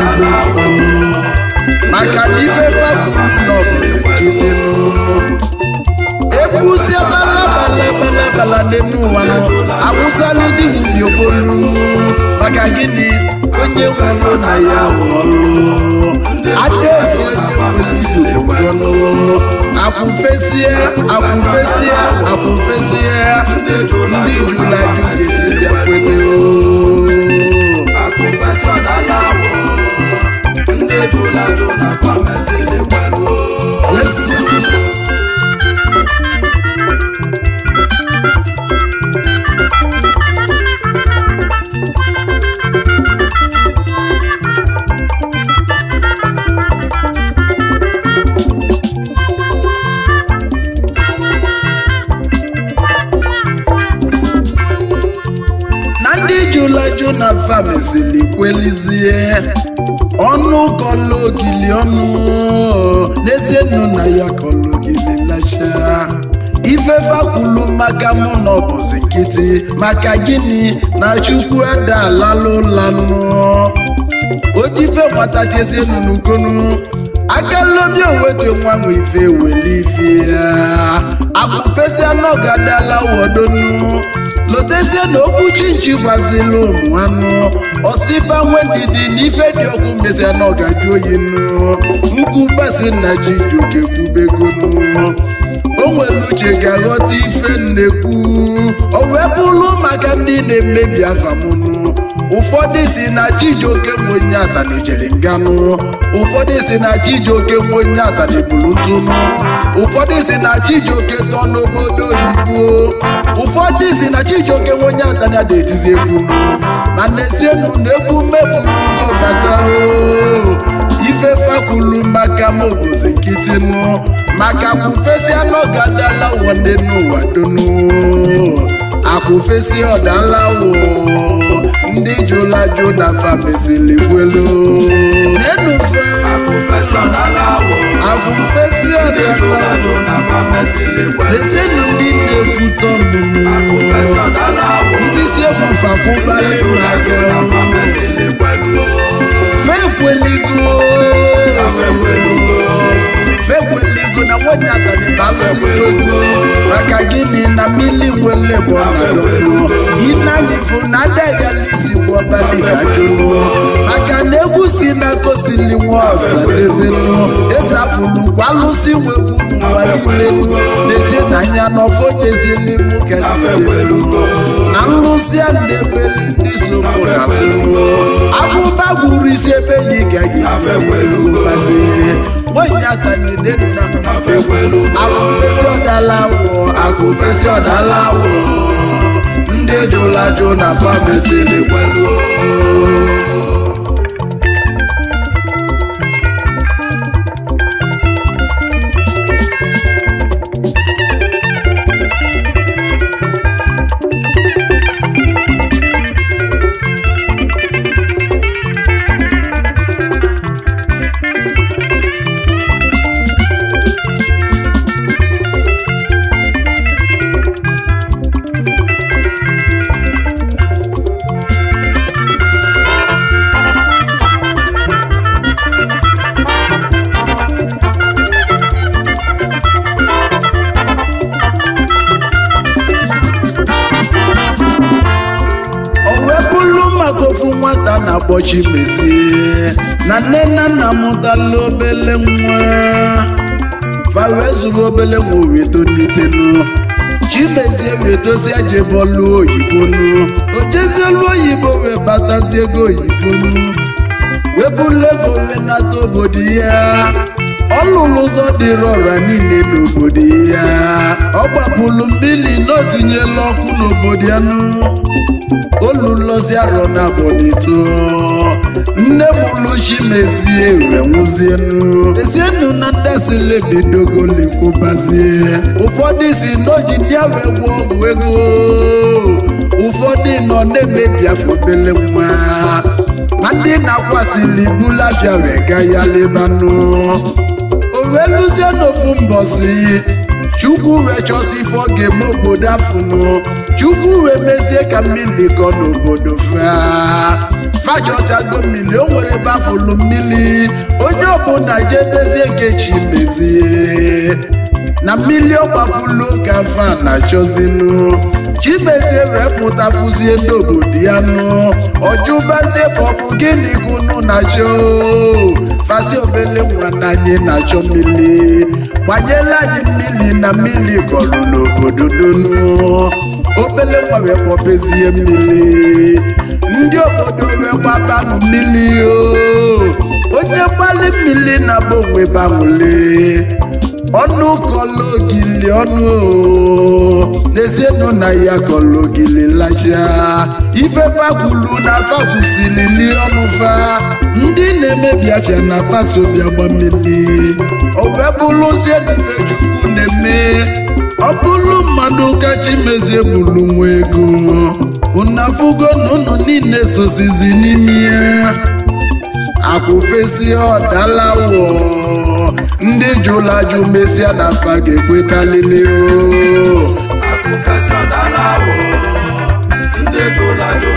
is it fun? Maka na ife fabụlọ bụzi nkịtị egwuzie balabalabalabala n'elu ụwa nọ awụsala dị nri obolu maka gịnị onye nwụrụ na ya nwụrụ adaezi onye nwụrụ akwụfesie akwụfesie akwụfesie ndị jula dị ga-ejeziakweleo ejula juna famesi famasi dịkwanụ na ọnụ kọlụ ogili ọnụ n'ezie nụ na ya kọlụ ogili lacha ifefe kwulu maka mụ na ọbụzi nkịtị maka gịnị na chukwu adalalụ ụlanụ ojife gbatachazi nnukwu akalobi onwetu nwa nwe ife weli ife ya akpụpesịa n'ọgadala wodonu lotezie na okwu chinchi gbaziri ụmụ anụ osifa nwedidi na ife dị ọgwụ mmesia na ọgaju oyi nụ nkwu basi na ji juke kwubegonu o nwere uche ga-aghọta ife nnekwu o wee bụrụ maka ndị na-emebi afamụnụ ụfọdụ si na chijioke nwe onye ata nganụ ụfọdụ si na chijioke nwe onye ata na ntụnụ ụfọdụ si na Chijioke tọ n'obodo oyibo ụfọdụ si na Chijioke nwe onye atanya na-etizi egwu mana esienu na egwu mmebụ bata ife fakwulu maka m obozi nkịtị m maka kwufesi anụ gadala wọde n'ụwa donu akwụfesi ọdalawo ndị jụla jụ na fabesili gwelo nenufe akwụfesi ọdala lesinụ ndị na-ekwute ọmụmụ ndị si ebufe akwụbala na nwanyị atanịba maka gịnị na na adịghị ya egwu maka na egwu si na-akosili nwa ọsadebelu eze apụlụkwa alụsị nwe ụwa niilelu n'ezie na anya n'ọfọ jezili mụkadelu na nlụsị a na-ebeli ndị sokwụrụ abụba gwuru isi ebe ya isi ọdala awụọ ọdala awụọ ndị na na-akpọ Chimezie na nne na nna mụtala obele nwa fa wee zuru obele nwa wee tolitelu Chimezie wee dozie jebe ọlụ oyibo ojezie olu oyibo wee batazi ego oyibo wee bulu ego wee nata obodo ya ọ ụzọ dịrị ọra niile n'obodo ya ọ gbapụrụ mmiri na o tinyela ọkụ n'obodo ya nụ oluluzi arọ na abọdịtụ nne m luchi mezie ewe nwụzienu ezienu na ndasilebidogo lekwubazie ụfọdụ si n'oji ndị awe gwa ọgwụ ego ụfọdụ nọ na-emebi afọ bele nwa ma ndị na-akwasịli bulafia wega ya lebanụ o wee luzie n'ofu mbọsi chukwu wee chọsi ife ọ ga-eme obodo chukwu wee mezie ka mmiri kọ n'obodo fafajajago mmiri o nwere ebe afọlu mmili. onye ọbụla jee mezie nke chi mezie na mmiri ọgbapụlu ka fa na Chi mezie wee pụta fụzie ndị obodo ya nụ Ọjụ fa ọ bụ gịnị gụnụ na chọ fasi obele nwana anyị na-achọ mmili. gbanyela anyị na mmili kọrọ n'obodo donu obele nwa wee kpọbezie mmiri ndị obodo wee gbabanụ mmiri onye mgbali mmiri na bụ onwe banwụle ọnụ kọlụ ogili ọnụ n'ezienụ na ya kọlụ ogili lacha ife fakwulu na fakwusilili ọnụfa ndị na-emebi afịa na fasobia gbammiri owee wee bụrụzie na ife chukwu na-eme ọ bụrụ mmadụ kachi mezie bụrụ nwa ego unafugo na ụnụ niile sosizi n'ime ya akwụfesi ọdalawo ndị jụla ajụ mesịa na mpa ga-ekwetalili o ndị jụla jụ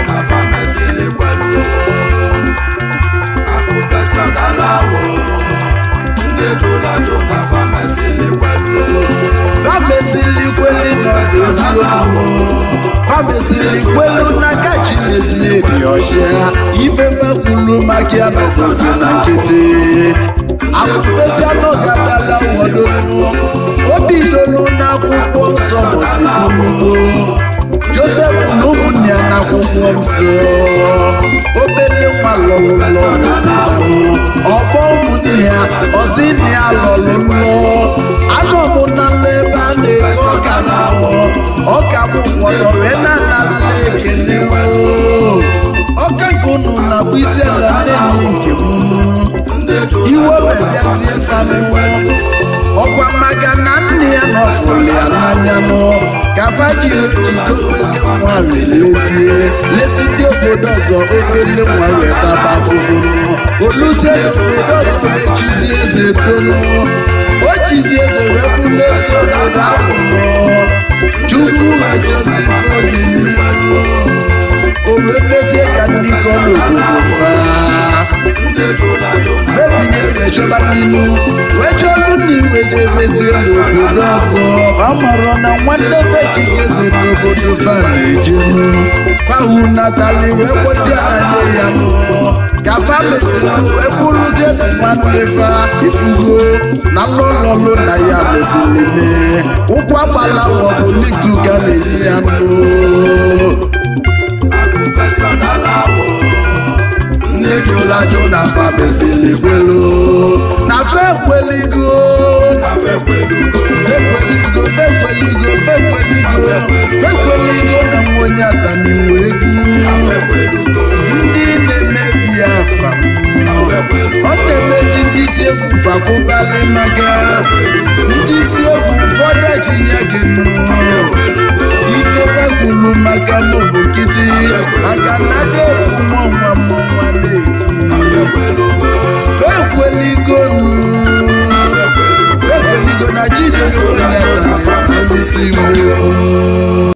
na amesili kwelu amesili kwelu n'aka chinezili dị ọchịa ifefe kwuru maka ya nọzọzi na nkịtị akụfesi anọ gadala wadolu obi lolu akwụkwọ nsọ mosikwuo josef na ụmụnne ya n'akwụkwọ nsọ obele nwa lọrụlọ ọbọ ụmụnne ya ọzi nne ya lọrụlọ n'iwe ọkwa maka na nne ya nọfụrụ ya n'anya nụ ka fajiri nwa lezie lesi ndị obodo ọzọ ofele nwa weta bafụfụ oluzie na obodo ọzọ echizi eze donu o chizi eze wepụla eso na afọ nnu wejelu na iwejebezi n'obodo ọzọ mara na nwanne bejiezi n'obodo fana fahu natali wee na nne ya kaba mesịrị wee bụrụzie nwanne ifugo na lọlọlụ na ya mesịrị mee ụkwụ agbala maọbụ lituga na-enye ya nnu nne gị ụlajụ na fa mesịrị gbelu fekweligo fekweligo fekweligo fekweligo fekweligo na nwa onye ataniwe egwu ndị na-emebi afa ọ na-emezi ndị isi egwu fakwụbalị maka ndị isi egwu ụfọdụ eji ya gị